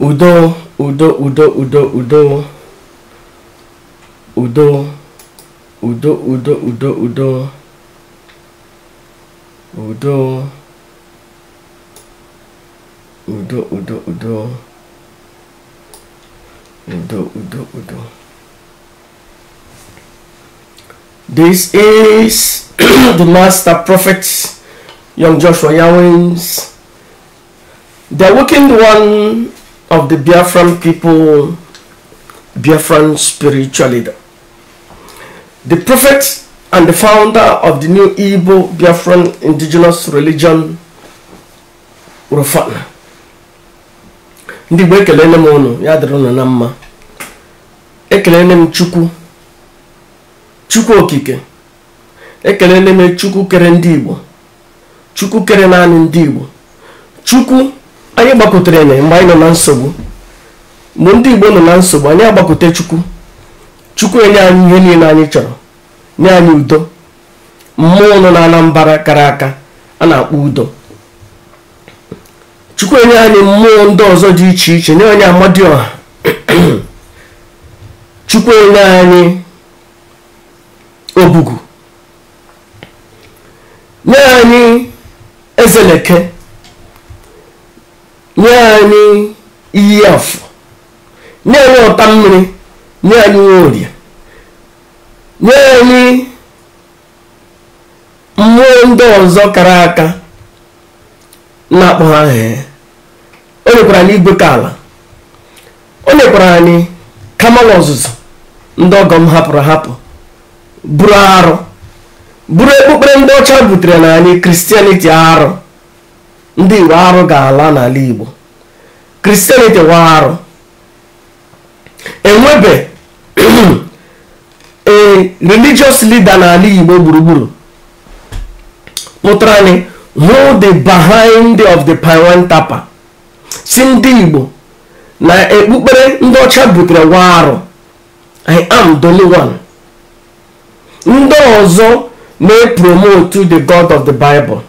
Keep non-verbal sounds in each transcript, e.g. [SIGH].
Udo, Udo, Udo, Udo, Udo. Udo. Udo, Udo, Udo, Udo. Udo. Udo, Udo, Udo. Udo, Udo, Udo. This is [CLEARS THROAT] the master prophet, young Joshua Yawins. The awakened one of the Biafran people, Biafran spiritual leader. The prophet and the founder of the new Igbo Biafran indigenous religion, Rufana. ndi Igbo ekelele m ụnụ ya dịrị ụnụ na mma ekelele m Chukwu Chukwu okike ekelele m Chukwu kere ndị Igbo Chukwu kere naanị ndị Igbo Chukwu anyị gbakọtara enye mgbe anyị nọ na nsogbu mgbe ndị igbo nọ na nsogbu anyị agbakọta chukwu chukwu enye anyị ihe niile anyị chọrọ nye anyị udo mmụọ nọ na mbara kara aka a na-akpọ udo chukwu enye anyị mmụọ ndị ọzọ dị iche iche nye anyị amadioha [CLEARS THROAT] chukwu enye anyị obugu nye anyị ezeleke nye anyị iyi afọ nye anyị ọta mmiri nye anyị nworie nye anyị mmụọ ndị ọzọ kara aka na-akpọ ha he o nyekwara anyị igwe ka ala o nyekwara anyị kama ọzụzụ ndị ọgọ m hapụrụ hapụ bụrụ arụ bụrụ ekpukpere ndị ọcha butere na anyị kristianiti arụ ndị iwe arụ ga-ala n'ala igbo kristianity wa arụ enwebe [CLEARS THROAT] a religious leader n'ala igbo gburugburu pụtara anyị who the behind of the Pawan Tapa si ndị igbo na ekpukpere ndị ọcha butere wa arụ i am the only one ndị ọzọ na-epromote the god of the bible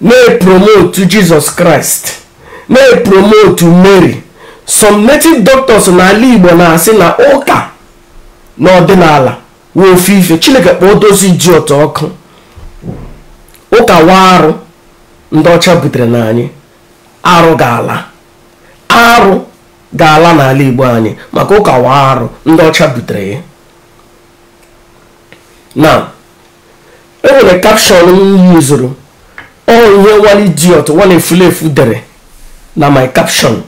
na-epromotu jizọs kraịst na-epromotu mary some native doctors n'ala igbo na-asị na ụka n'ọdịnala wee ofe ife chineke kpọọ dozi ji ụtọ ọkụ ụka wa arụ ndị ọcha butere na anyị arụ ga-ala arụ ga-ala n'ala igbo anyị maka ụka wa arụ ndị ọcha butere ya na enwere kapshọn m yuzuru all ihe nwa idiot nwa na efu dere na my caption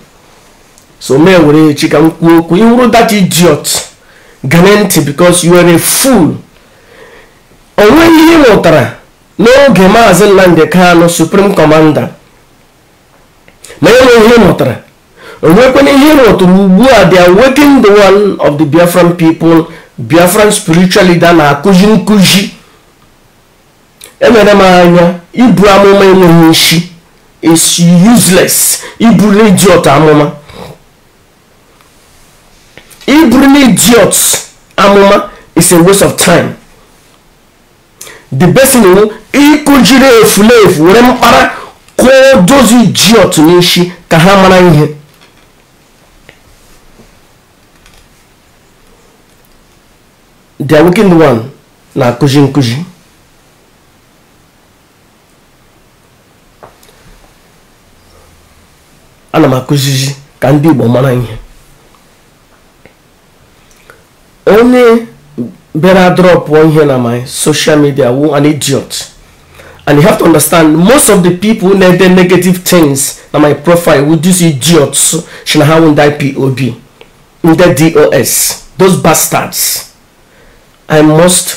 so mee were echi ka m kwuo okwu ịhụrụ that idiot gane ntị because you are a fool ihe ịmụtara n'oge maazị Nnamdi kano supreme commander ma enweghị ihe ịmụtara onwekwana ihe ịmụtara ugbu a they are the one of the Biafran people Biafran spiritual leader na-akụzi nkụzi emere m anya ibu amụma enweghị nshi is useless iburu idiot amụma iburu idiot amụma is a waste of time the best thing wu ịkụjiri efulefu were mkpara kụọ dozi idiot n'isi ka ha mara ihe the wicked one na-akụzi nkụzi ana m akụzizi ka ndị igbo mara ihe onye bịara drọpụọ ihe na my social media wụ an idiot and you have to understand most of the people na-ede negative things na my profile wụ these idiots shi na ha wụ ndị P.O.B. ndị dos those bastards i must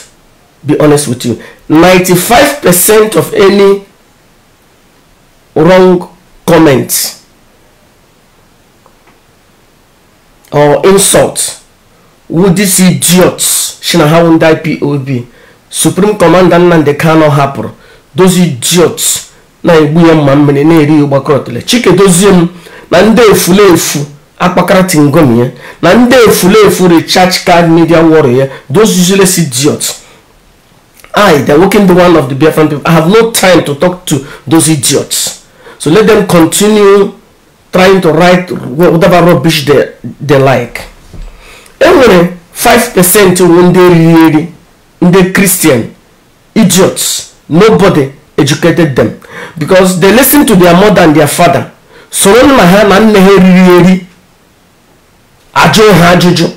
be honest with you 95 percent of any wrong comments. or insult would these idiots Shinahawundai POB Supreme Commander the Kanu hapụrụ those idiots na-egbu ya mma mmiri na-eri ya ụgbakọ chike dozie m na ndị efulefu akpakara tingomi ya na ndị efulefu church card media warrior ya those useless idiots I, they working the one of the Biafran people, I have no time to talk to those idiots. So let them continue trying to write whatever rubbish they, they like enwere 5% ndị riri eri ndị christian idiots nobody educated them because they listen to their mother and their father soro nna ha na nne ha eriri eri ajụ ha ajụjụ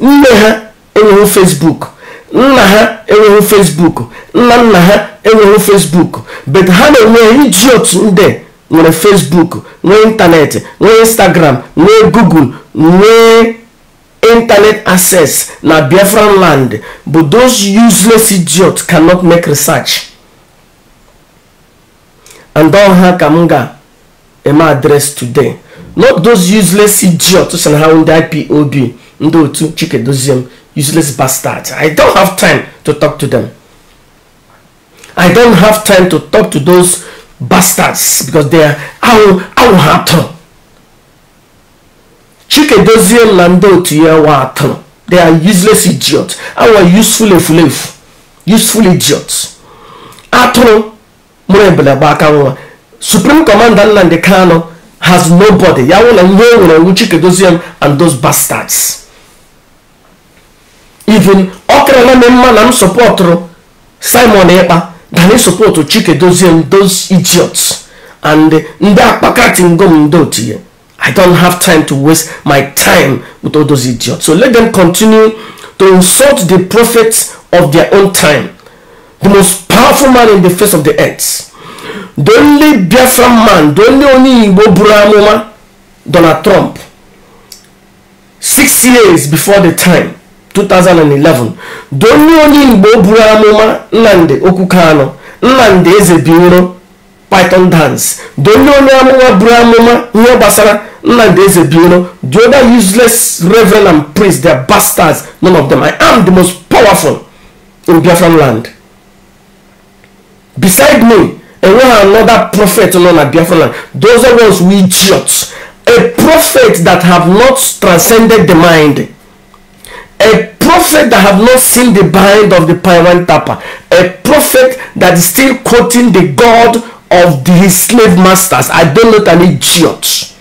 nne ha enweghị facebook nna ha enweghị facebook nna nna ha enweghị facebook but ha na-enweghị idiot ndị nwere facebook nwee ịntanetị nwee instagram nwee google nwee internet access na biafran land but those useless idiots cannot make research and all ha ka m ga-eme address today not those useless idiots so na ha ndị ipob ndị otu chike doziem useless bastards i don't have time to talk to them i don't have time to talk to those bastards because they are awụ awụ ha tụrụ chikedozie na ndị otu ya wa atụrụ they are useless idiots awụ useful efulefu useful idiots atụrụ mụrụ ebele gba aka nwa supreme commander nnamdi kano has nobody ya wụ na ihe o e nwere nwu chikedozie and those bastards even ọ karịla m mma na m sọpọtụrụ simon ịkpa dani support chike dozie those idiots and uh, ndị akpakati ngom ndị otu ya i don't have time to waste my time with all those idiots so let them continue to insult the prophet of their own time the most powerful man in the face of the earth the only biafra man the only onye igbo buru amụma donald trump six years before the time 2011 donye onye igbo buru amụma nnamdị okwuke anọ nnamdị eze bioro python dance donye onye amụma buru amụma ihe gbasara nnamdị eze bioro the other useless reverend and priest they bastards none of them i am the most powerful in biafran land beside me enweghị another prophet nọ na biafran land those are ones we idiots a prophet that have not transcended the mind a prophet that have not seen the behind of the pirate tapper a prophet that is still quoting the god of the, his slave masters i don't know an idiot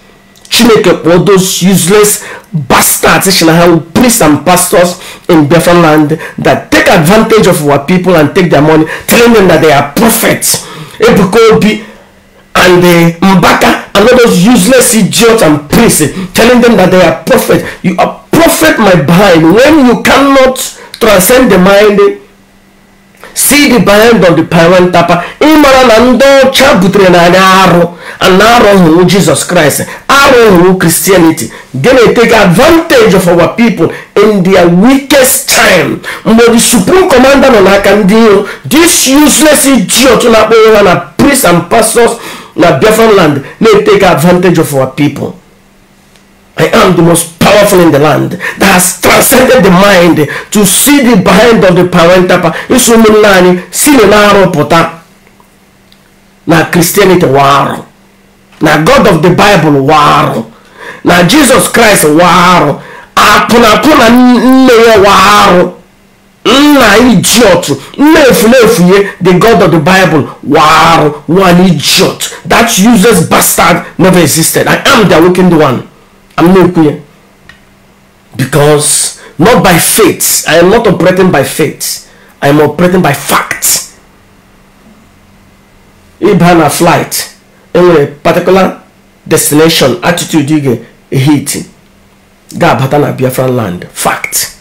chineke kpọọ those useless bastards shina priests and pastors in biafran land that take advantage of our people and take their money telling them that they are prophets ebuka obi and uh, mbaka and all those useless idiots and priests telling them that they are prophets you are Prophet my mind when you cannot transcend the mind see the behind of the parent tapa ịmara na ndị ọcha butere na anyị arụ na Christ. I jizọs kraịst arụ christianity kristianity gana take advantage of our people in their weakest time mgbe the supreme commander nọ n'aka this useless idiot na-akpọ na priests and pastors na different land they take advantage of our people I am the most powerful in the land that has transcended the mind to see the behind of the parental power. Isu ụmụnne anyị si n'arụ na Christianity war. na God of the Bible war. na Jesus Christ warụ apuna na nne ya warụ nna idiot the God of the Bible war. one idiot that useless bastard never existed. I am the awakened one. I'm not here Because not by faith. I am not operating by faith. I am operating by facts. If I'm a flight, in a particular destination, attitude you get a heat. Gabata na Biafran land. Fact.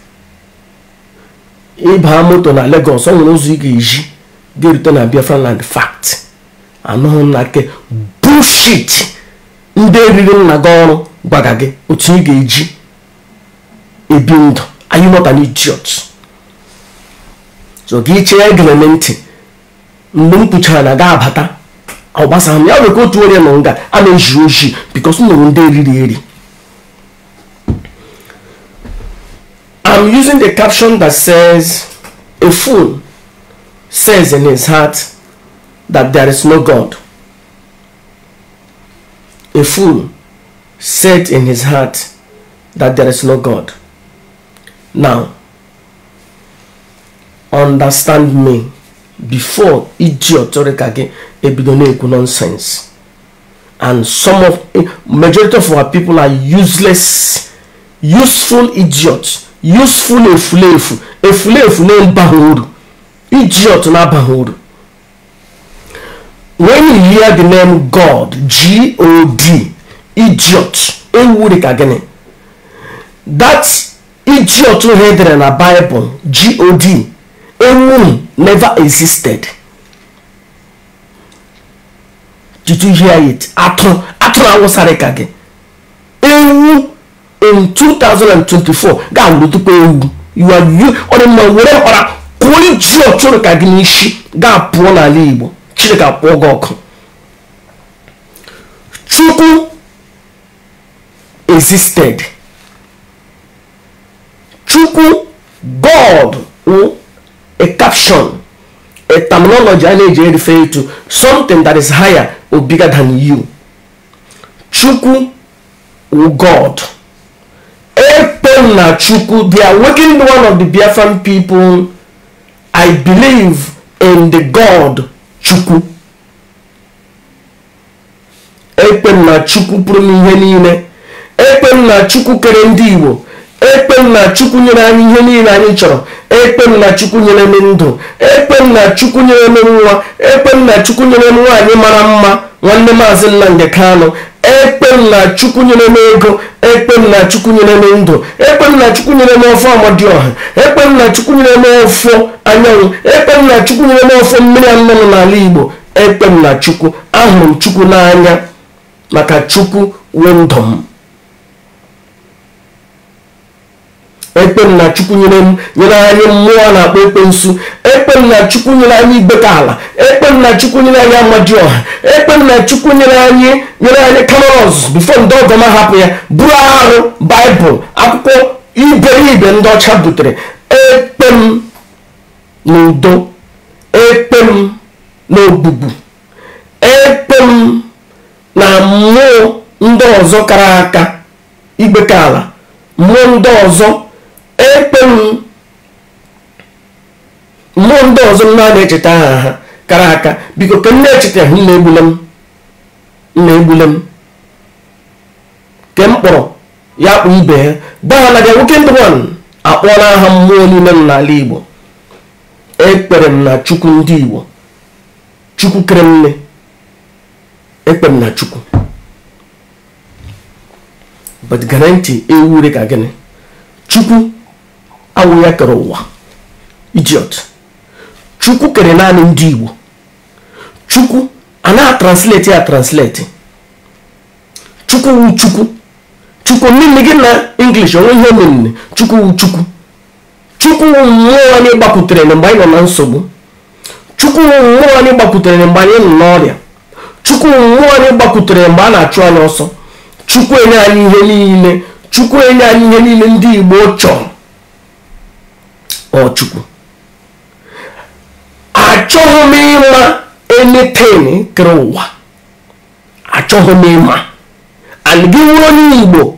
If I'm moto na Lagos, someone knows you get they return na Biafran land. Fact. I know na nke bullshit ndị eriri nna gị gwaga gị otu ị ga-eji ebi ndụ anyị not an idiot so gị chee gịlele ntị mgbe m kpuchara na ga-abata ọgbasa ya nwere ka otu onye nọ nga a na-eji ojii bikos m nụrụ ndị eriri eri I'm using the caption that says a fool says in his heart that there is no God a fool said in his heart that there is no God. Now, understand me before idiot ọtọrịka gị ebido na-ekwu nonsense and some of majority of our people are useless useful idiots useful efulefu efulefu na-abaghị uru idiot na-abaghị when you hear the name God G-O-D idiot enwuri ka gịnị that idiot hedere na Bible god enwuri never existed did you hear it atụ atụ na awụsara ka gị ewu in 2024 ga-awụrụ tupu ewu you are you ọ dị mma were ọra kụọ idiot ụrụ ka gị n'isi ga-apụọ n'ala Igbo Chineke apụọ gị ọkụ Chukwu existed chukwu god mm, a caption a terminology a na-eji refer to something that is higher or bigger than you chukwu o god na chukwu they are working one of the biafran people i believe in the god chukwu na chukwu pụrụ n'ihe niile ekpe m na chukwu kere ndị igbo ekpe m na chukwu nyere anyị ihe niile anyị chọrọ ekpe m na chukwu nyere m ndụ ekpe m na chukwu nyere m nwa ekpe m na chukwu nyere m nwaanyị mara mma nwanne maazị Nnamdi Kanụ ekpe m na chukwu nyere m ego ekpe m na chukwu nyere m ndụ ekpe m na chukwu nyere m ofe Amadioha ekpe m na chukwu nyere m ofe anyanwụ ekpe m na chukwu nyere m ofe mmiri anụmanụ n'ala igbo ekpe m na chukwu ahụrụ m chukwu n'anya maka chukwu wee m ekpe na chukwu nyere m anyị mmụọ na-akpọ ekpensu ekpe na chukwu nyere anyị ibeka ala ekpe na chukwu nyere anyị amaji ọha ekpe na chukwu nyere anyị nyere anyị kamerọs bifo ndị ọgọma hapụ ya bụrụ arụ baịbụl akwụkwọ iberibe ndị ọcha butere ekpem na udo ekpem na ogbugbu ekpem na mmụọ ndị ọzọ kara aka ibeka ala mmụọ ndị ọzọ ekpe ndị ọzọ m na-echeta aha ha kara aka biko ka m na-echeta nna egbule m nna egbule m ke m kpọrọ ya kpụ ibe ya gbaa na nwoke ndị wan akpọla aha mmụọ niile m n'ala igbo ekpere m na chukwu ndị igbo chukwu kere mme ekpere m na chukwu but garanti ka gịnị chukwu awụ ya kere ụwa idiot chukwu kere naanị ndị igbo chukwu a na-atranslate ya translate chukwu wu chukwu chukwu nne gị na english onwe ihe omenne chukwu wu chukwu chukwu wu mmụọ anyị gbapụtere na mgbe anyị nọ na nsogbu chukwu wu mmụọ anyị gbapụtere na mgbe anyị nọ n'ọrịa chukwu wu mmụọ anyị gbapụtere mgbe a na-achụ anyị ọsọ chukwu enye anyị ihe niile chukwu enye anyị ihe niile ndị igbo chọrọ Ọchukwu achọghị m ịma anything kere ụwa achọghị m ịma and gị nwere onye Igbo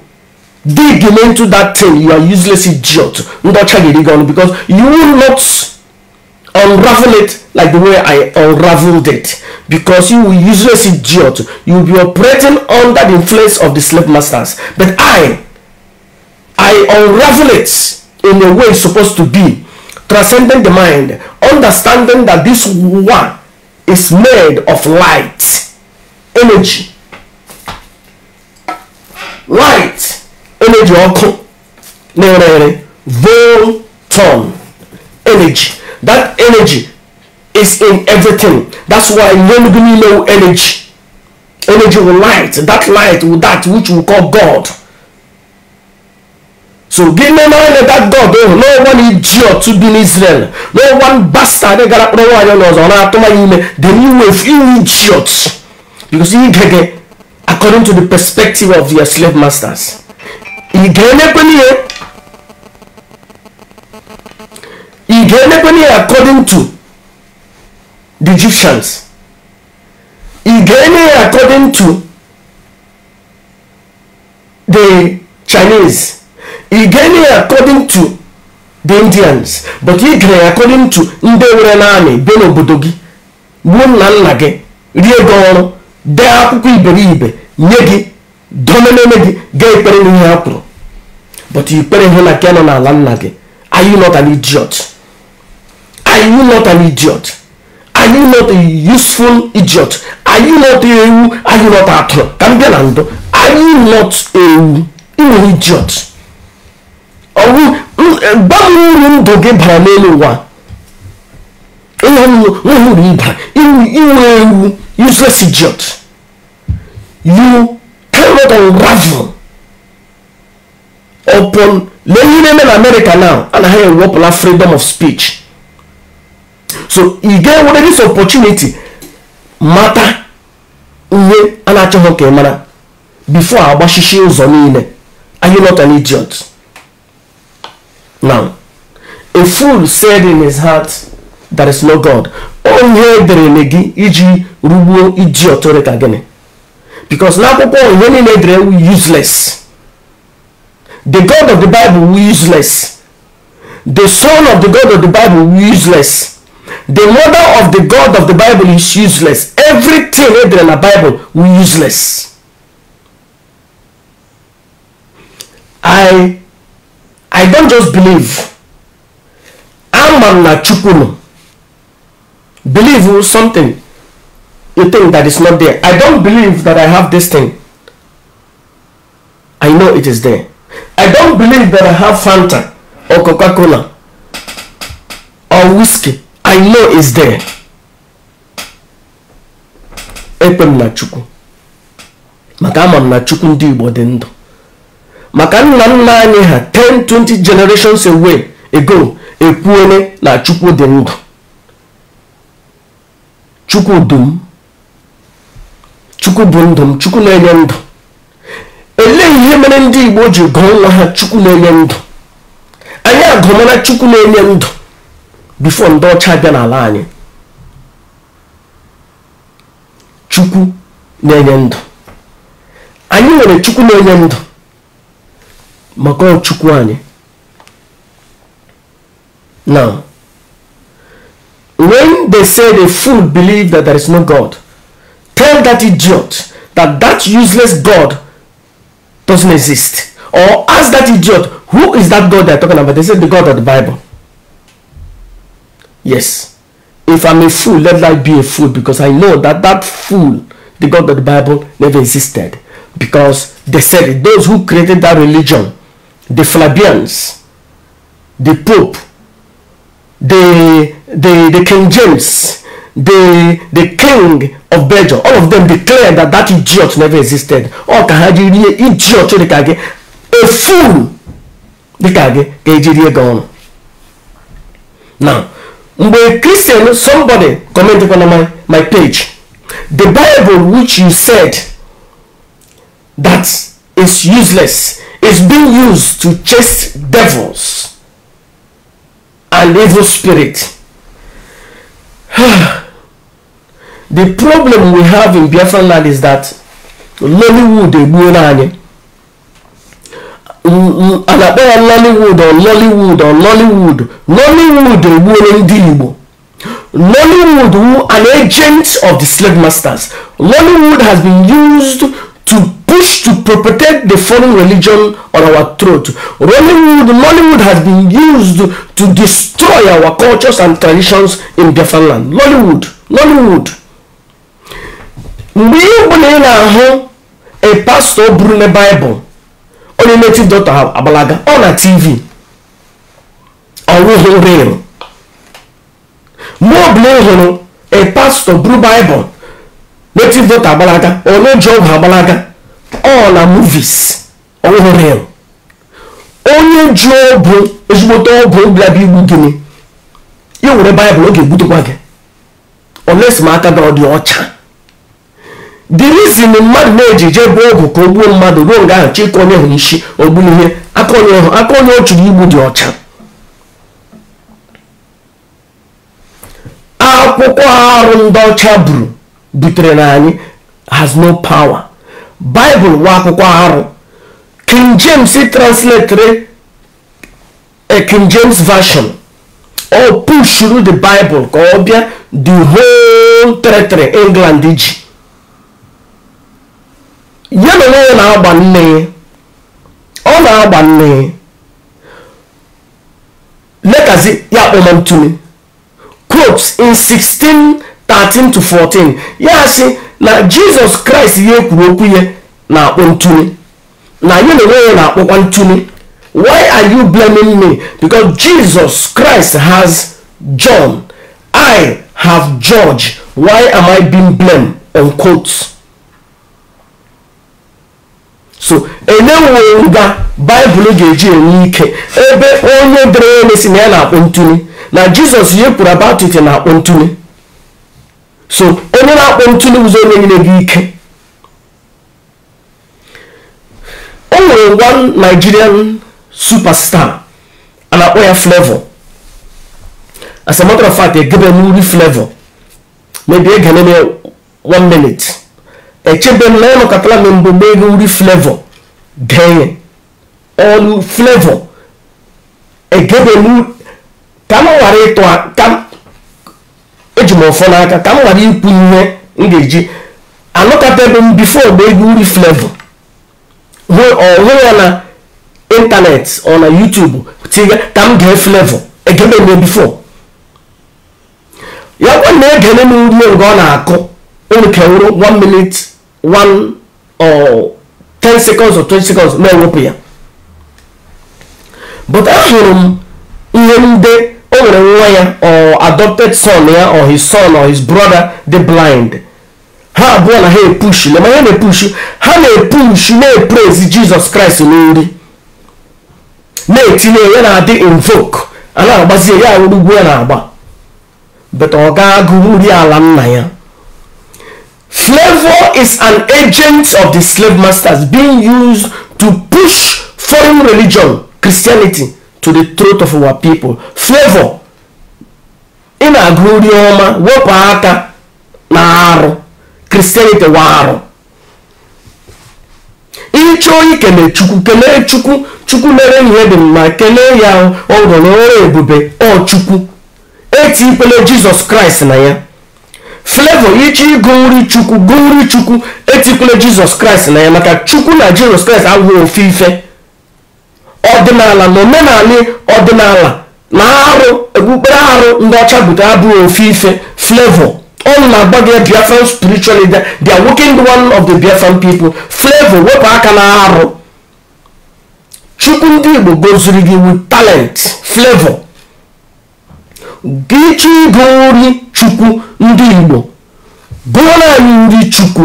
dig into that thing you are useless idiot ndị ọcha gị gị because you will not unravel it like the way I unraveled it because you will useless idiot you will be operating under the influence of the slave masters but I I unravel it in a way it's supposed to be transcending the mind, understanding that this one is made of light, energy, light, energy ọkụ na-ere volton energy. That energy is in everything. That's why when we energy, energy will light. That light will that which we call God. So give me money that God oh, no one idiot to be in Israel. No one bastard they got up no one knows on after my email. The new wave you idiots. Because you get according to the perspective of your slave masters. according to the Egyptians. Again according to the Chinese. Igene according to the Indians but Igene according to ndị nwere naanị bịa n'obodo gị gbuo nna nna gị rie gị ọrụ dee akwụkwọ iberibe nye gị domenene gị gaa ikpere n'ihe ha kwuru but ikpere hụ na ke nọ n'ala nna gị are you not an idiot are you not an idiot are you not a useful idiot are you not a ewu are you not atụrụ ka m bịa na ndụ are you not ewu ị nwere idiot ɔwu gbamu ni doge bara n'elu ụwa ịnya nwu nwere ịba inwe ewu useless idiot you cannot unravel upon lee ihe na-eme na america now a na ha ewepụla freedom of speech so ị ga-enwere this opportunity mata ihe a na-achọghị ka ị mara before agbachisi ụzọ niile are you not an idiot Now, a fool said in his heart, There is no God. Onye edere gị iji rugbuo idiot rịka gịnị. Because n'akwụkwọ onye niile edere ewu useless. The God of the Bible were useless. The son of the God of the Bible were useless. The mother of the God of the Bible is useless. Everything edere na Bible were useless. I i don't just believe ama m na chukwu nọ believe something you think that is not there i don't believe that i have this thing i know it is there i don't believe that i have fanta or coca-cola or whiskey i know it's there ekpe m na chukwu maka ama m na chukwu ndị igbo dị ndụ maka nna nna anyị ha 10 20 generations away ago ekwuole na chukwu dị ndụ chukwu dum chukwu bụ ndụ m chukwu na-enye ndụ elee ihe mere ndị igbo ji gụọ nwa ha chukwu na-enye ndụ anyị agụmara chukwu na-enye ndụ bifo ndị ọcha bịa n'ala anyị chukwu na-enye ndụ anyị nwere chukwu na-enye ndụ maka ọchukwu now when they say the fool believe that there is no god tell that idiot that that useless god doesn't exist or ask that idiot who is that god they're talking about they say the god of the bible yes if i'm a fool let life be a fool because i know that that fool the god of the bible never existed because they said it. those who created that religion the Flavians, the Pope, the, the, the King James, the, the King of Belgium, all of them declared that that idiot never existed. Ọ ka ha jiri idiot dịka gị, a fool dịka gị ka eji rie gị ọnụ. Now, mgbe Christian somebody comment on my, my page, the Bible which you said that is useless is being used to chase devils and evil spirit. [SIGHS] the problem we have in Biafra land is that Lollywood Egbuonanye Lollywood or Lollywood or Lollywood Lollywood Lollywood who an agent of the slave masters Lollywood has been used to to perpetrate the foreign religion on our throat. Rollywood, Mollywood has been used to destroy our cultures and traditions in Biafranland. Lollywood, Lollywood. Mgbe ịbụ na ị na-ahụ a pastor buru na Bible onye native doctor Abalaga ọ na TV ọwụghị real. Mgbe ọbụla ị hụrụ a pastor buru Bible native doctor Abalaga ọ na Job Abalaga ọ na movies ọwụhụ real onye ji ọbụ ezigbote ọbụ bịabịa igbu gịnị ya nwere baịbụl ọ ga-egbutekwa gị oles m aka na ọ dị ọcha the mmadụ na-eji jee bụ ọgwụ ka o gbuo mmadụ ruo nga ahụ chịka onye hụrụ isi ogburu ihe aka onye hụ aka onye ọ chụrụ igbu dị ọcha akwụkwọ arụ ndị ọcha buru butere na anyị has no power baịbụl nwa akwụkwọ arụ king james translatere a eh, king james version o push through the bible ka ọ bịa the whole territory england ji ya na onwe ya na-agba nne ọ na-agba nne letazi ya kpọma ntumi in 16 13 to 14 ya sị na jizọs kraịst ihe kwuru okwu ya na-akpọ ntuli na anyị na-enwe ya na-akpọkwa ntuli why are you blaming me because jesus christ has john i have george why am i being blamed unquote so enyewo nga baịbụl ga-eji enwe ike ebe onye dere ya na-esi na ya na-akpọ ntuli na jizọs ihe kwuru about it na-akpọ ntuli so onye na-akpọ ntuli ụzọ onye nyere gị ike o nwere one nigerian superstar a na-akpọ ya flavor as a matter of fact egebe n'uri flavor maybe ege neme one minute echebe na ya nọkọtara na mbụ mee ego uri flavor denye ọnụ flavor egebe ka m ghara ịtụ eji m ụfọ n'aka ka m ghara ikwu ihe m ga-eji anọkọtabe m bifo mgbe egwu nri flevo hụ ya na ịntanetị ọ na yutubu tiga ka m gee flevo egememe bifo ya kwa na egene m ume nke ọ na-akụ ụrụkewuru 1 minute 1 or 10 seconds or 20 seconds na-ewepụ ya but ahụrụ m ihe ndị o e nwere nwa ya or adopted son ya or his son or his brother the blind ha abụọ na ha epushi lema ha na-epushi ha na-epushi na-eprezi jizọs kraịst n'ori na-etinye ya na-adị invoke a na-agbazie ya nwere ugwu ya na-agba but ọ ga-agụ nri ala nna ya flavor is an agent of the slave masters being used to push foreign religion christianity to the throat of our people favor ị na-agụ nri ọma wepụ aka na arụ kristianity wa arụ ịchọọ ikele chukwu kelee chukwu chukwu mere ihe dị mma kelee ya ọgọ ọrụ ebube ọ chukwu eti ikpele jizọs kraịst na ya flevo ịchọ ịgụ nri chukwu gụ nri chukwu eti ikpele jizọs kraịst na ya maka chukwu na jizọs kraịst abụghị ofe ife ọdịnala na omenala ọdịnala na arụ okpukpere arụ ndị ọcha butere abụghị ofe ife flavor all na-agba gị biafran spiritual leader they are working the one of the biafran people flavor wepụ aka na arụ chukwu ndị igbo goziri gị with talent flavor gị chọ ịgụ nri chukwu ndị igbo gụọrọ anyị nri chukwu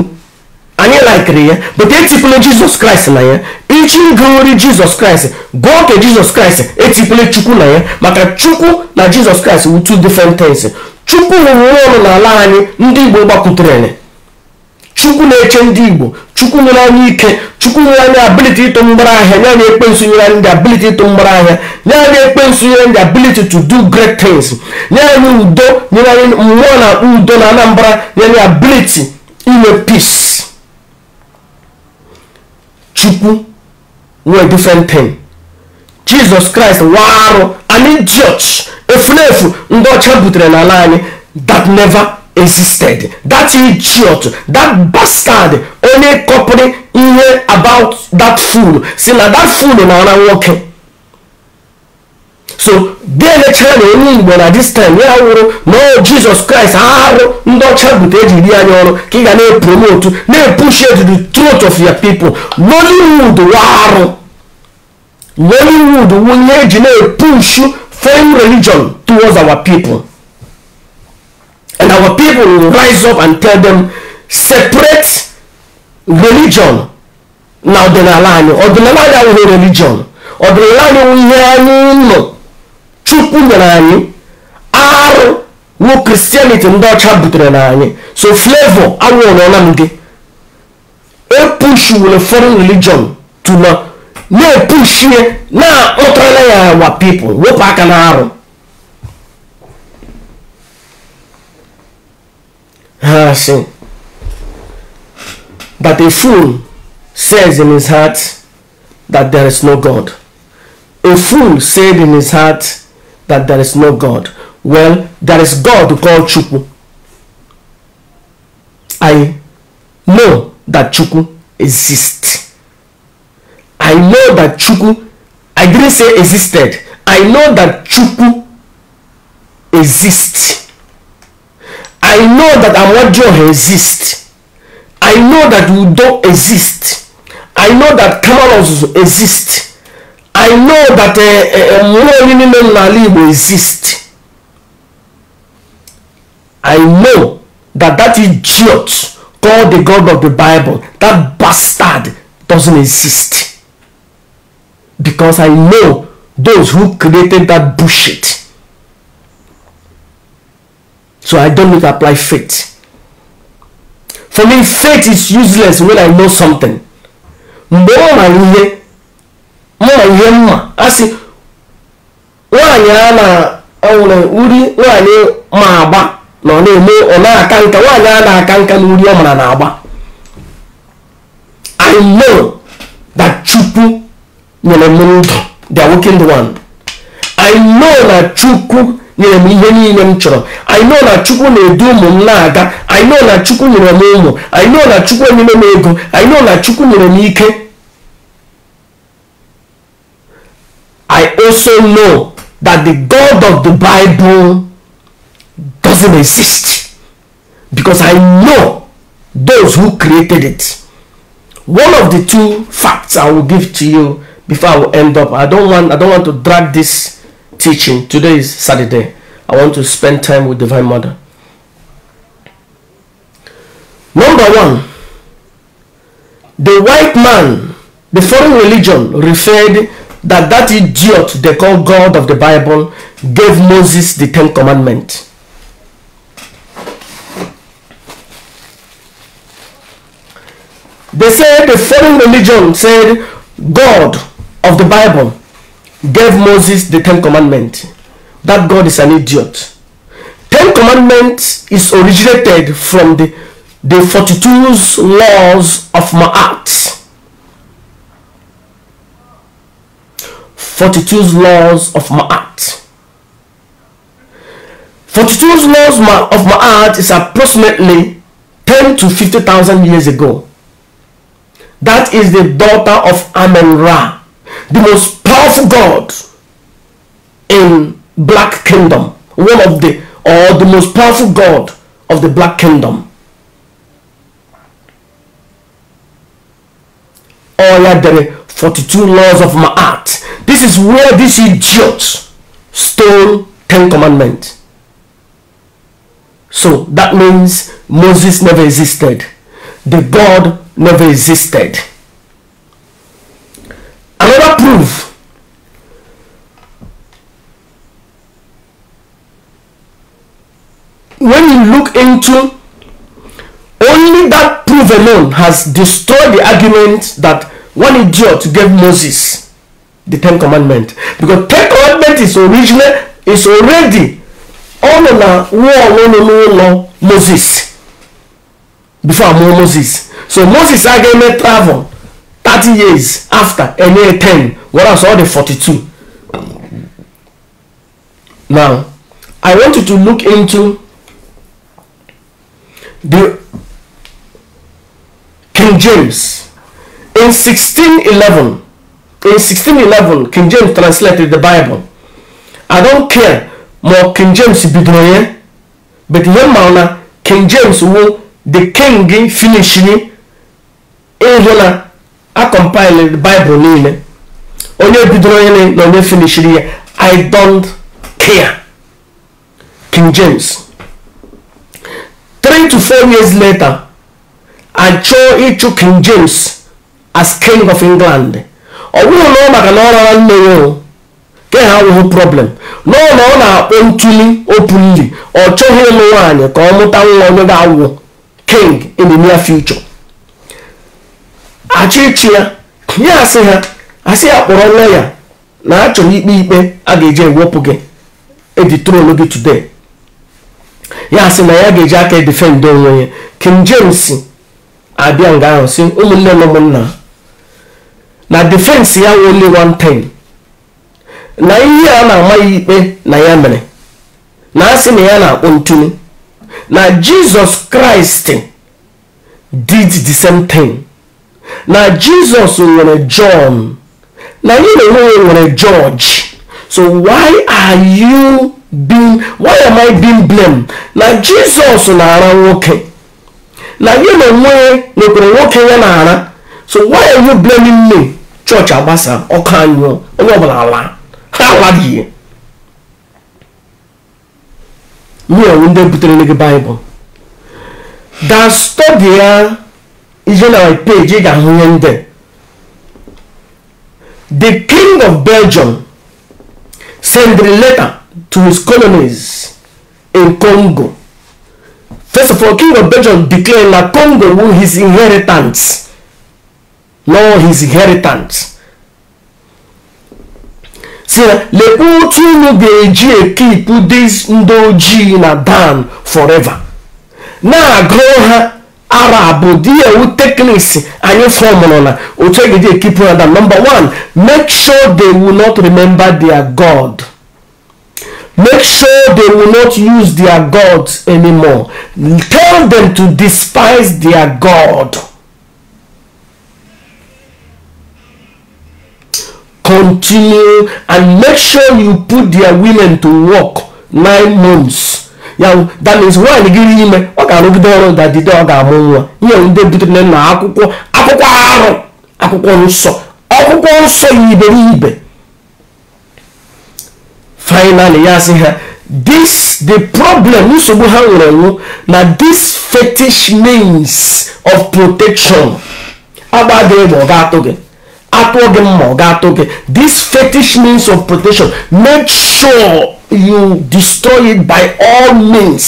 anyị laikiri ya but etipụla jizọs kraịst na ya echi gụri jesus kraịst gụọ ka jizọs kraịst etikwule chukwu na ya maka chukwu na jizọs kraịst wụ two different things chukwu rụrụ ọrụ n'ala anyị ndị igbo gbakwutere chukwu na-eche ndị igbo chukwu nwere anyị ike chukwu nwere anyị ability ịtụ mgbara ahịa nye ekpe ekpensu nyere anyị ndị ability ịtụ mgbara ahịa nye anyị ekpe nyere ndị ability to do great things nye anyị udo nyere anyị mmụọ na udo na anambra nye anyị ability inwe peace chukwu no different thing jesus christ nwa arụ anyị church efulefu ndị ọcha butere n'ala anyị that never existed that idiot that bastard onye kọpụrụ ihe about that fool si na that fool na ara nwoke so delecha na onye igbo na dis time ya wụrụ nọọ jizọs kraịst arụ ndị ọcha bute eji ri anya ọrụ ka ị ga na-epromotu na-epushi to the truth of your people nollywood warụ nollywood wunye eji na-epushu foreign religion towards our people and our people will rise up and tell them separate religion na ọdịnala anyị ọdịnala anyị awụghị religion ọdịnala anyị wụ ihe anyị nọ chụpụ nyere anyị arụ wụ kristianity ndị ọcha butere na anyị so flavor anwụrụ nnamdị epush were foreign religion to na na na-akpọtara ya wa people wepụ aka na arụ ha si but a fool says in his heart that there is no god a fool said in his heart that there is no God. Well, there is God called Chukwu. I know that Chukwu exists. I know that Chukwu, I didn't say existed. I know that Chukwu exists. I know that Amadio exists. I know that Udo exists. I know that Kamalos exists i know that mmụọ uh, uh, niile n'ala igbo exist i know that that idiot called the god of the bible that bastard doesn't exist because i know those who created that bullshit so i don't need to apply faith for me faith is useless when i know something mgbe ọ mara ihe mma ihe mma asị nwaanyị a na-anwụrụ uri nwaanyị ma agba na ọ na-eme ọ na-aka nka nwaanyị a na-aka nka na uri ọ mara na agba i know that chukwu nyere m ndụ the wicked one i know na chukwu nyere m ihe niile m chọrọ i know na chukwu na-edu ụmụ m na-aga i know na chukwu nyere m ụmụ i know na chukwu enyere m ego i know na chukwu nyere m ike I also know that the God of the Bible doesn't exist because I know those who created it. One of the two facts I will give to you before I will end up. I don't want I don't want to drag this teaching. Today is Saturday. I want to spend time with Divine Mother. Number one, the white man, the foreign religion referred that that idiot they call God of the Bible gave Moses the Ten Commandments. They said the foreign religion said God of the Bible gave Moses the Ten Commandments. That God is an idiot. Ten Commandments is originated from the, the 42 laws of Ma'at. 42 laws of my art. 42 laws of my art is approximately 10 to 50,000 years ago. That is the daughter of Amen Ra, the most powerful god in Black Kingdom, one of the or the most powerful god of the Black Kingdom. oh, yeah, 42 laws of my art. This is where this idiot stole 10 commandments. So that means Moses never existed. The God never existed. Another proof when you look into only that proof alone has destroyed the argument that one idiot to give Moses the Ten Commandment because Ten Commandment is original is already ọ nọ na nwa Moses before amụọ Moses so Moses a ga travel thirty years after enye 10 whereas all the forty-two? now I want you to look into the King James In 1611, in 1611, King James translated the Bible. I don't care more King James bidoye, but yemauna King James will the king finishing ehona a compile the Bible nile. Onye bidoye na onye finishing I don't care. King James. Three to four years later, I chose King James as king of england ọ bụrụ na ọ maka na ọ rara nne ya o ke ha nwụghị problem nọọ na ọ na-akpọ ntuli openly ọ chọghị ụmụ nwaanyị ka ọ mụta nwa onye ga-awụ king in the near future achịchị ya ya asị ha asị ya kpọrọ nne ya na achọrọ ikpe ikpe a ga-eji ewepụ gị eji trolu gị today ya asị na ya ga-eji aka edefend onwe ya king james abịa nga ahụ si ụmụnne na ụmụnna na defense ya only one time na ihe a na-ama ya ikpe na ya mere na asị na ya na-akpọ ntunu na jizọs kraịst did the same thing na jizọs nwere john na anyị na-enweghị nwere george so why are you being why am i being blamed na jizọs na-ara nwoke na gị na onwe n'okpuru nwoke ya na-ara so why are you blaming me chọọchị agbasa ọkụ anyụọ onye ọbụla ala ha alaghị mụọnwụ ndị butere gị baịbụl da stọdi ya ije na my ga-ahụ ihe ndị the king of belgium sent a letter to his colonies in congo first of all king of belgium declared na congo will his inheritance nor his inheritance See, na lekwa otu unu ga-eji ekipu dis ndị ojii na dan forever na-agụ ha arab dị ewu tekniks anyị fọmụrụ na otu egeji ekipu na dan number one make sure they will not remember their god make sure they will not use their gods anymore tell them to despise their god continue and make sure you put their women to work nine months ya that means nwaanyị gịrị ime ọ ga-arụgide ọrụ dadide ọ ga-amụ nwa ihe ndị butere na akwụkwọ akwụkwọ arụ akwụkwọ nsọ akwụkwọ nsọ ya iberibe finally ya sị ha this the problem nsogbu ha nwere nwụ na this fetish means of protection agba adịghị ma ọ ga-atụ gị atụ gị mma ọ ga-atụ gị this fetish means of protection make sure you destroy it by all means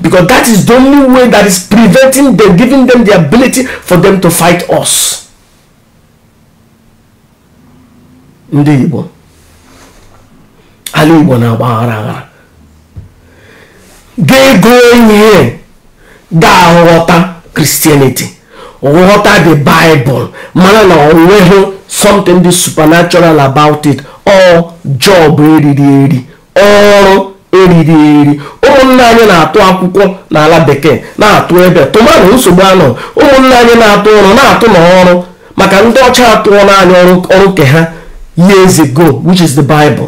because that is the only way that is preventing them giving them the ability for them to fight us ndị Igbo ala Igbo na-agbaghara aghara ga-ego ihe ga-aghọta Christianity water the bible mana na onweghị something dị supernatural about it ọ job eriri eri ọrụ eriri eri ụmụnne anyị na-atụ akwụkwọ n'ala bekee na-atụ ebe tụmanụ nsogbu anọ ụmụnne anyị na-atụ ọrụ na-atụ n'ọrụ maka ndị ọcha atụọ naanị ọrụ nke ha years ago which is the bible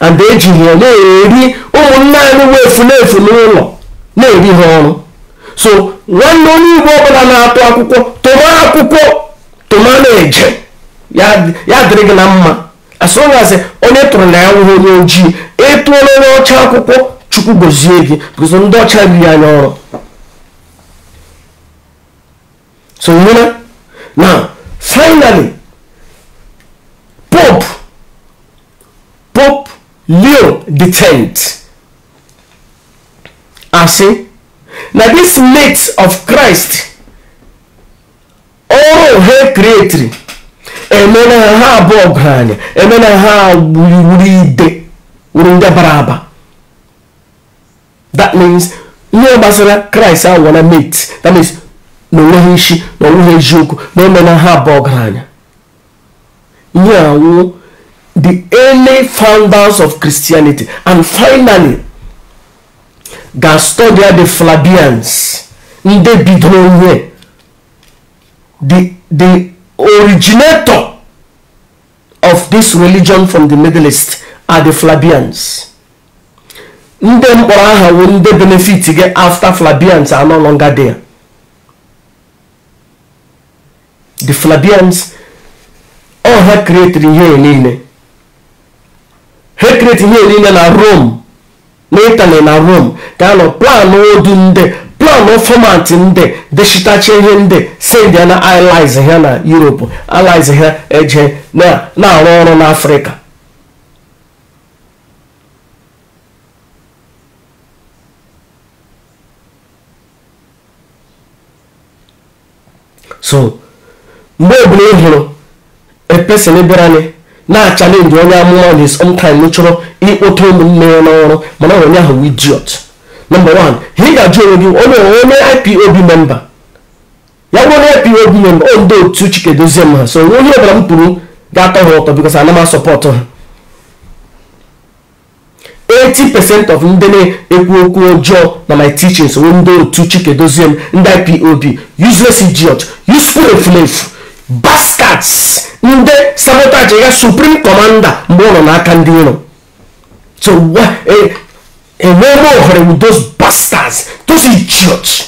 and ejighị ya na-eri ụmụnne anyị wefu na-efu n'ụlọ na-eri ha ọrụ so nwanne onye igbo ọbụla na-atụ akwụkwọ tụma akwụkwọ tụma na-eje ya dịrị gị na mma asụgasị onye tụrụ na ya nwụghị onye ojii ịtụọla onye ọcha akwụkwọ chukwu gozie gị bụzọ ndị ọcha riri anya ọrụ so na finally pope pope leo the tenth asị na dis mate of christ ọrụ oh, ha kreatiri emena ha abụọ anya emena ha wuriwuri ide wuru ndị bara aba that means ihe gbasara kraịst awụọla mate that means na onweghị isi na onweghị eziokwu na emena ha abụọ anya ihe anwụ the early founders of christianity and finally Gastodia the Flavians ndị bidoro the the originator of this religion from the Middle East are the Flabians. ndị mkpọrọ aha wo ndị benefit gị after Flabians are no longer there the Flabians all ha kreatiri ihe niile ha kreatiri ihe niile na Rome na Italy na Rome ga-anọ planụ odu ndị planụ fọmatị ndị dechitacha ihe ndị a na allies ha na Europe allies ha eje na-arụ ọrụ n'Afrịka so mgbe ọbụla ị hụrụ epesin na-achalenji onye amụma dị sometime ị chọrọ ịkpọta ụmụnne ya n'ọrụ mana onye ahụ idiot nọmba 1 ị ga-ajụ onwe gị onye onye ipob memba ya bụrụ na ipob memba o ndị otu chike dozie m ha so onye ọbụla m pụrụ ga-atọ ha ụtọ bikos ana m asọpọtụ ha 80% of ndị na-ekwu okwu ọjọọ na my teachings wee ndị otu chike dozie m ndị ipob useless idiot useful eflefu bas sabotage ndị sabotage ga supreme commander mgbe ọ nọ n'aka ndị iro so enwere ohere with those bastards those idiots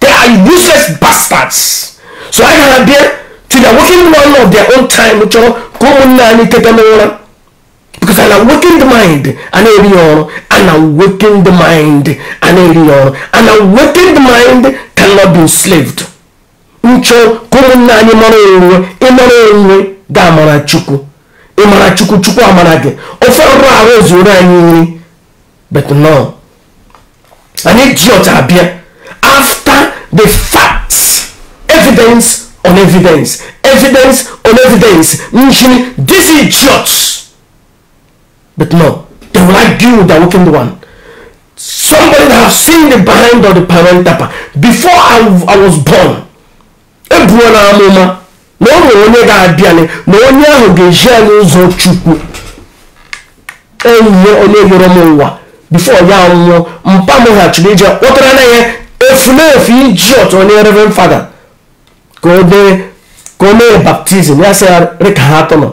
they are useless bastards so I gara bịa to their working one of their own time chọrọ ka ụmụnne anyị n'ụra because ana working the mind an na-eri awakened ọrụ ana working the mind an na-eri awakened ọrụ ana working the mind cannot be enslaved nchọ ka ụmụnna anyị mara onwe ịmara onwe ga-amara chukwu ịmara chukwu chukwu amara gị ofe ọrụ ahụ zuru anyị nri but no anyị ji ọcha abịa after the facts evidence on evidence evidence on evidence nchiri this idiots but no they will argue with the wicked one somebody that have seen the behind of the parent tapa before I, I was born ebuo n'amụma na ọ nwere onye ga-abịanị na onye ahụ ga-eji anyị ụzọ chukwu enyi onye yọrọ m ụwa bifo ya nwụọ mpa m ghachiri ije kpọtara na ya efulefu iji ọtọ onye reverend fada ka o dee ka o mee baptizim ya sị rịka ha atọ nọ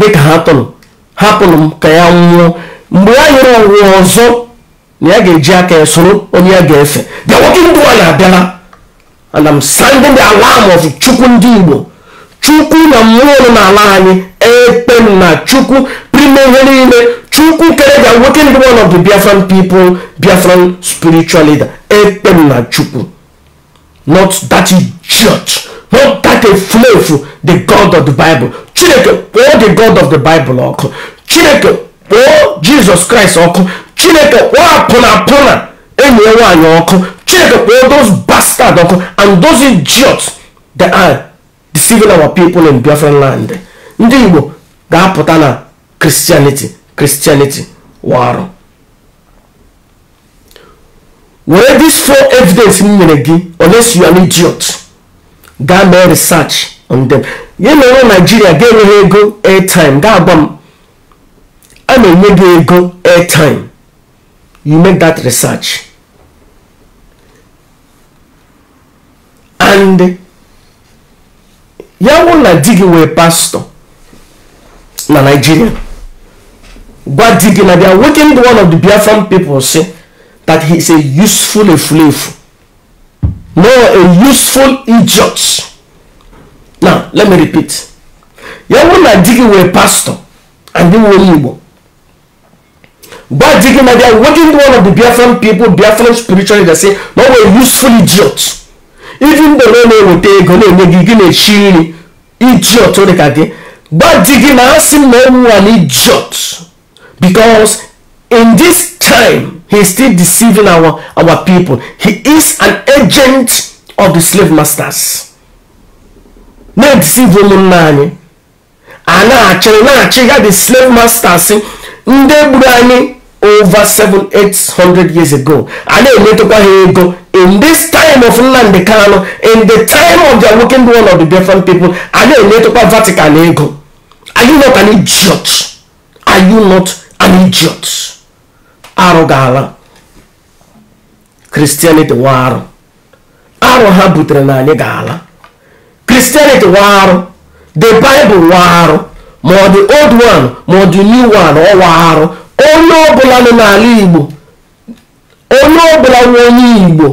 rịka ha atọ nọ hapụrụ m ka ya nwụọ mgbe ya yọrọ ụwa ọzọ na ya ga-eji aka ya soro onye ya ga-efe bịa nwoke ndụ a na-abịala and I'm sending the alarm of chukwu ndị igbo chukwu na mmụọ na ala anyị ekpe na chukwu prime ihe niile chukwu kere the awakened one of the biafran people biafran spiritual leader ekpe na chukwu not that idiot not that efulefu the god of the bible chineke kpọọ the god of the bible ọkụ chineke kpọọ jesus christ ọkụ chineke kpọọ apụna apụna enyi ya nwaanyị ọkụ chineke kpọọ those start don come and those idiots that are deceiving our people in biafran land ndị igbo ga-apụta na christianity christianity warụ were this four evidence m nyere gị unless you are an idiot gaa mee research on them ya na onwe naijiria ga-enye ego airtime ga-agwa m a na-enye gị ego airtime you make that research and ya na di gị wee pastọ na Nigeria gwa di gị na they are waking the one of the Biafran people say that he is a useful efulefu no a useful idiot now let me repeat ya na di gị wee pastọ and di wee Igbo gwa di gị na they are waking the one of the Biafran people Biafran spiritually they say no a useful idiot even though na na-eweta ego na-enye gị gị na-echi nri idiot dị ka gị gwa di gị na asị m na ụmụ an idiot because in this time he is still deceiving our our people he is an agent of the slave masters na-edisive ụmụnna man. a na-achị na-achị ya the slave masters ndị gburu anyị over 700-800 years ago a na-emetụkwa ha ego in this time of Nnamdi Kanu in the time of the awakened one of the different people a na-emetụkwa Vatican ego are you not an idiot are you not an idiot arụ ga-ala Christianity wa arụ arụ ha butere na anyị ga-ala Christianity wa arụ the Bible wa arụ ma ọ dị old one ma ọ dị new one ọ wa arụ onye ọbụla nọ n'ala igbo onye ọbụla nwe onye igbo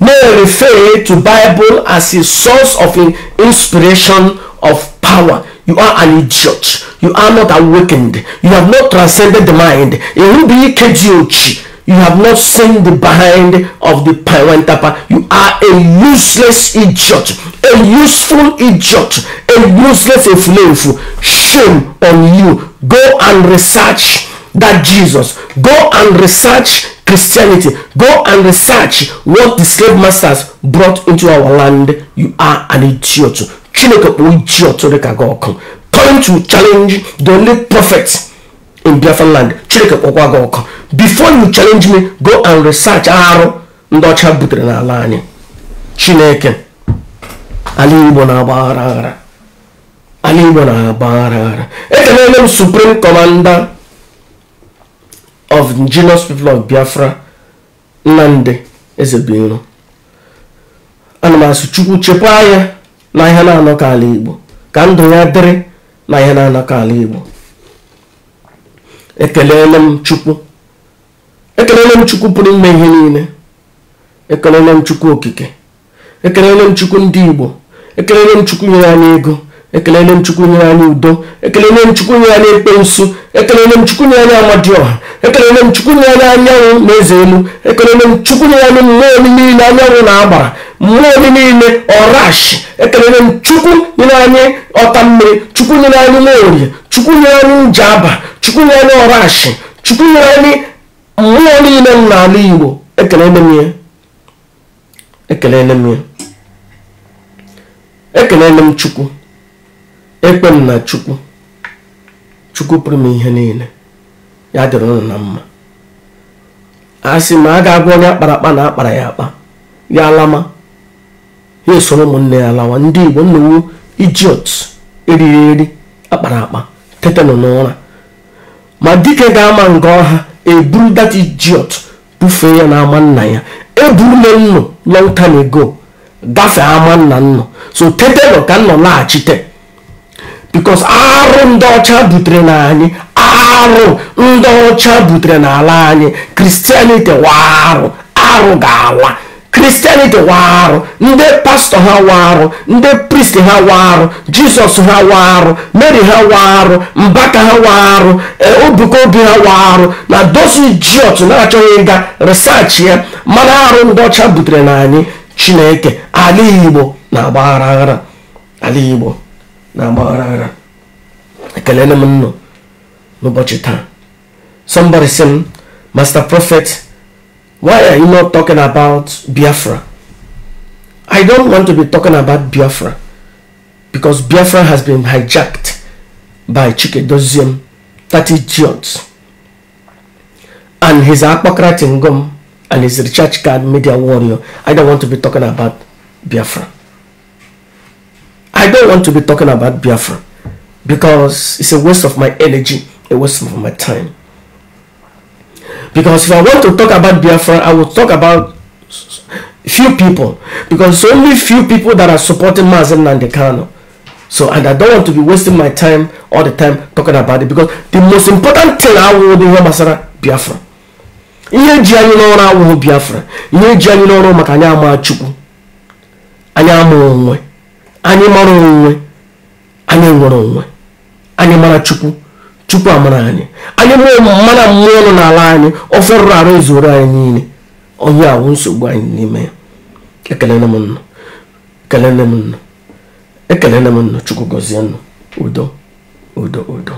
na-refer to bible as a source of inspiration of power you are an idiot you are not awakened you have not transcended the mind erube ike ji ochi you have not seen the behind of the parentapa you are a useless idiot a useful idiot a useless efulefu shame on you go and research that Jesus. Go and research Christianity. Go and research what the slave masters brought into our land. You are an idiot. Chineke bụ idiot dị ka gị ọkụ. Come to challenge the only prophet in Biafra land. Chineke kpọkwa gị ọkụ. Before you challenge me, go and research arụ ndị ọcha butere n'ala anyị. Chineke ala Igbo na-agba aghara aghara. ala Igbo na-agba aghara aghara. Ekelele m Supreme Commander of indigenous people of Biafra Nnamdi Ezebiro ana m asụ Chukwu chekwaa ya na ihe na-anọkọ ala Igbo ka ndụ ya dịrị na ihe na-anọkọ ala Igbo ekelele m Chukwu ekelele m Chukwu pụrụ ime ihe niile ekelele m Chukwu okike ekelele m Chukwu ndị Igbo ekelele m Chukwu nyere anyị ego ekelele m chukwu nyere anyị udo ekelele m chukwu nyere anyị ekpe nsu ekelele m chukwu nyere anyị amadioha ekelele m chukwu nyere anyị anyanwụ na eze elu ekelele m chukwu nyere anyị mmụọ oli niile anyanwụ na agbara mmụọ oli niile ọrashi ekelele m chukwu nyere anyị ọta mmiri chukwu nyere anyị nwaorie chukwu nyere anyị nje aba chukwu nyere anyị ọrashi chukwu nyere anyị mmụọ niile m n'ala igbo ekelele m ya ekelele m ya ekelele m chukwu ekpe na chukwu chukwu pụrụ m ihe niile ya dịrị ụnụ na mma a sị ma a ga-agwa onye akpara akpa na akpara ya akpa ya alama ya esoro ụmụnne ya lawa ndị igbo nnawu ijiot eriri eri akpara akpa tetanụ n'ụra ma dike ga-ama nga ọha eburu that ijiot bufee ya na ama nna ya eburule nnụ long time ago gafee ama nna nnụ so tetanụ ka nnọ laghachite bikos arụ ndị ọcha butere na arụ ndị ọcha butere n'ala anyị kristianity warụ arụ ga-ala kristianity warụ ndị pastọ ha warụ ndị pristi ha warụ jizọs ha warụ mary ha warụ mbaka ha warụ e, obuka obi ha warụ na dozi jiọt na-achọghị ịga risachi ya mana arụ ndị ọcha butere na anyị chineke ala igbo na-agbaghara ala igbo na agba ghara ghara ekele m nnụ n'ụbọchị taa somebody sị m master prophet why are you not talking about biafra i don't want to be talking about biafra because biafra has been hijacked by chikedozium 30 giants and his hypocrite tingom and his recharge card media warrior i don't want to be talking about biafra I don't want to be talking about Biafra because it's a waste of my energy, a waste of my time. Because if I want to talk about Biafra, I will talk about few people because only few people that are supporting Mazin Nandekano. So, and I don't want to be wasting my time all the time talking about it because the most important thing I will do is Biafra. ihe ji anyị n'ọrụ awụghị biafra ihe ji anyị n'ọrụ maka anyị ama chukwu anyị ama onwe anyị mara onwe anyị nwere onwe anyị mara chukwu chukwu amara anyị anyị mụọ mara mmụọ nọ n'ala anyị ọrụ arụ ezuru anyị niile onye awụ nsogbu anyị n'ime ya ekelele m nnu ekelele m nnu ekelele m nnu chukwu gọzie nnu udo udo udo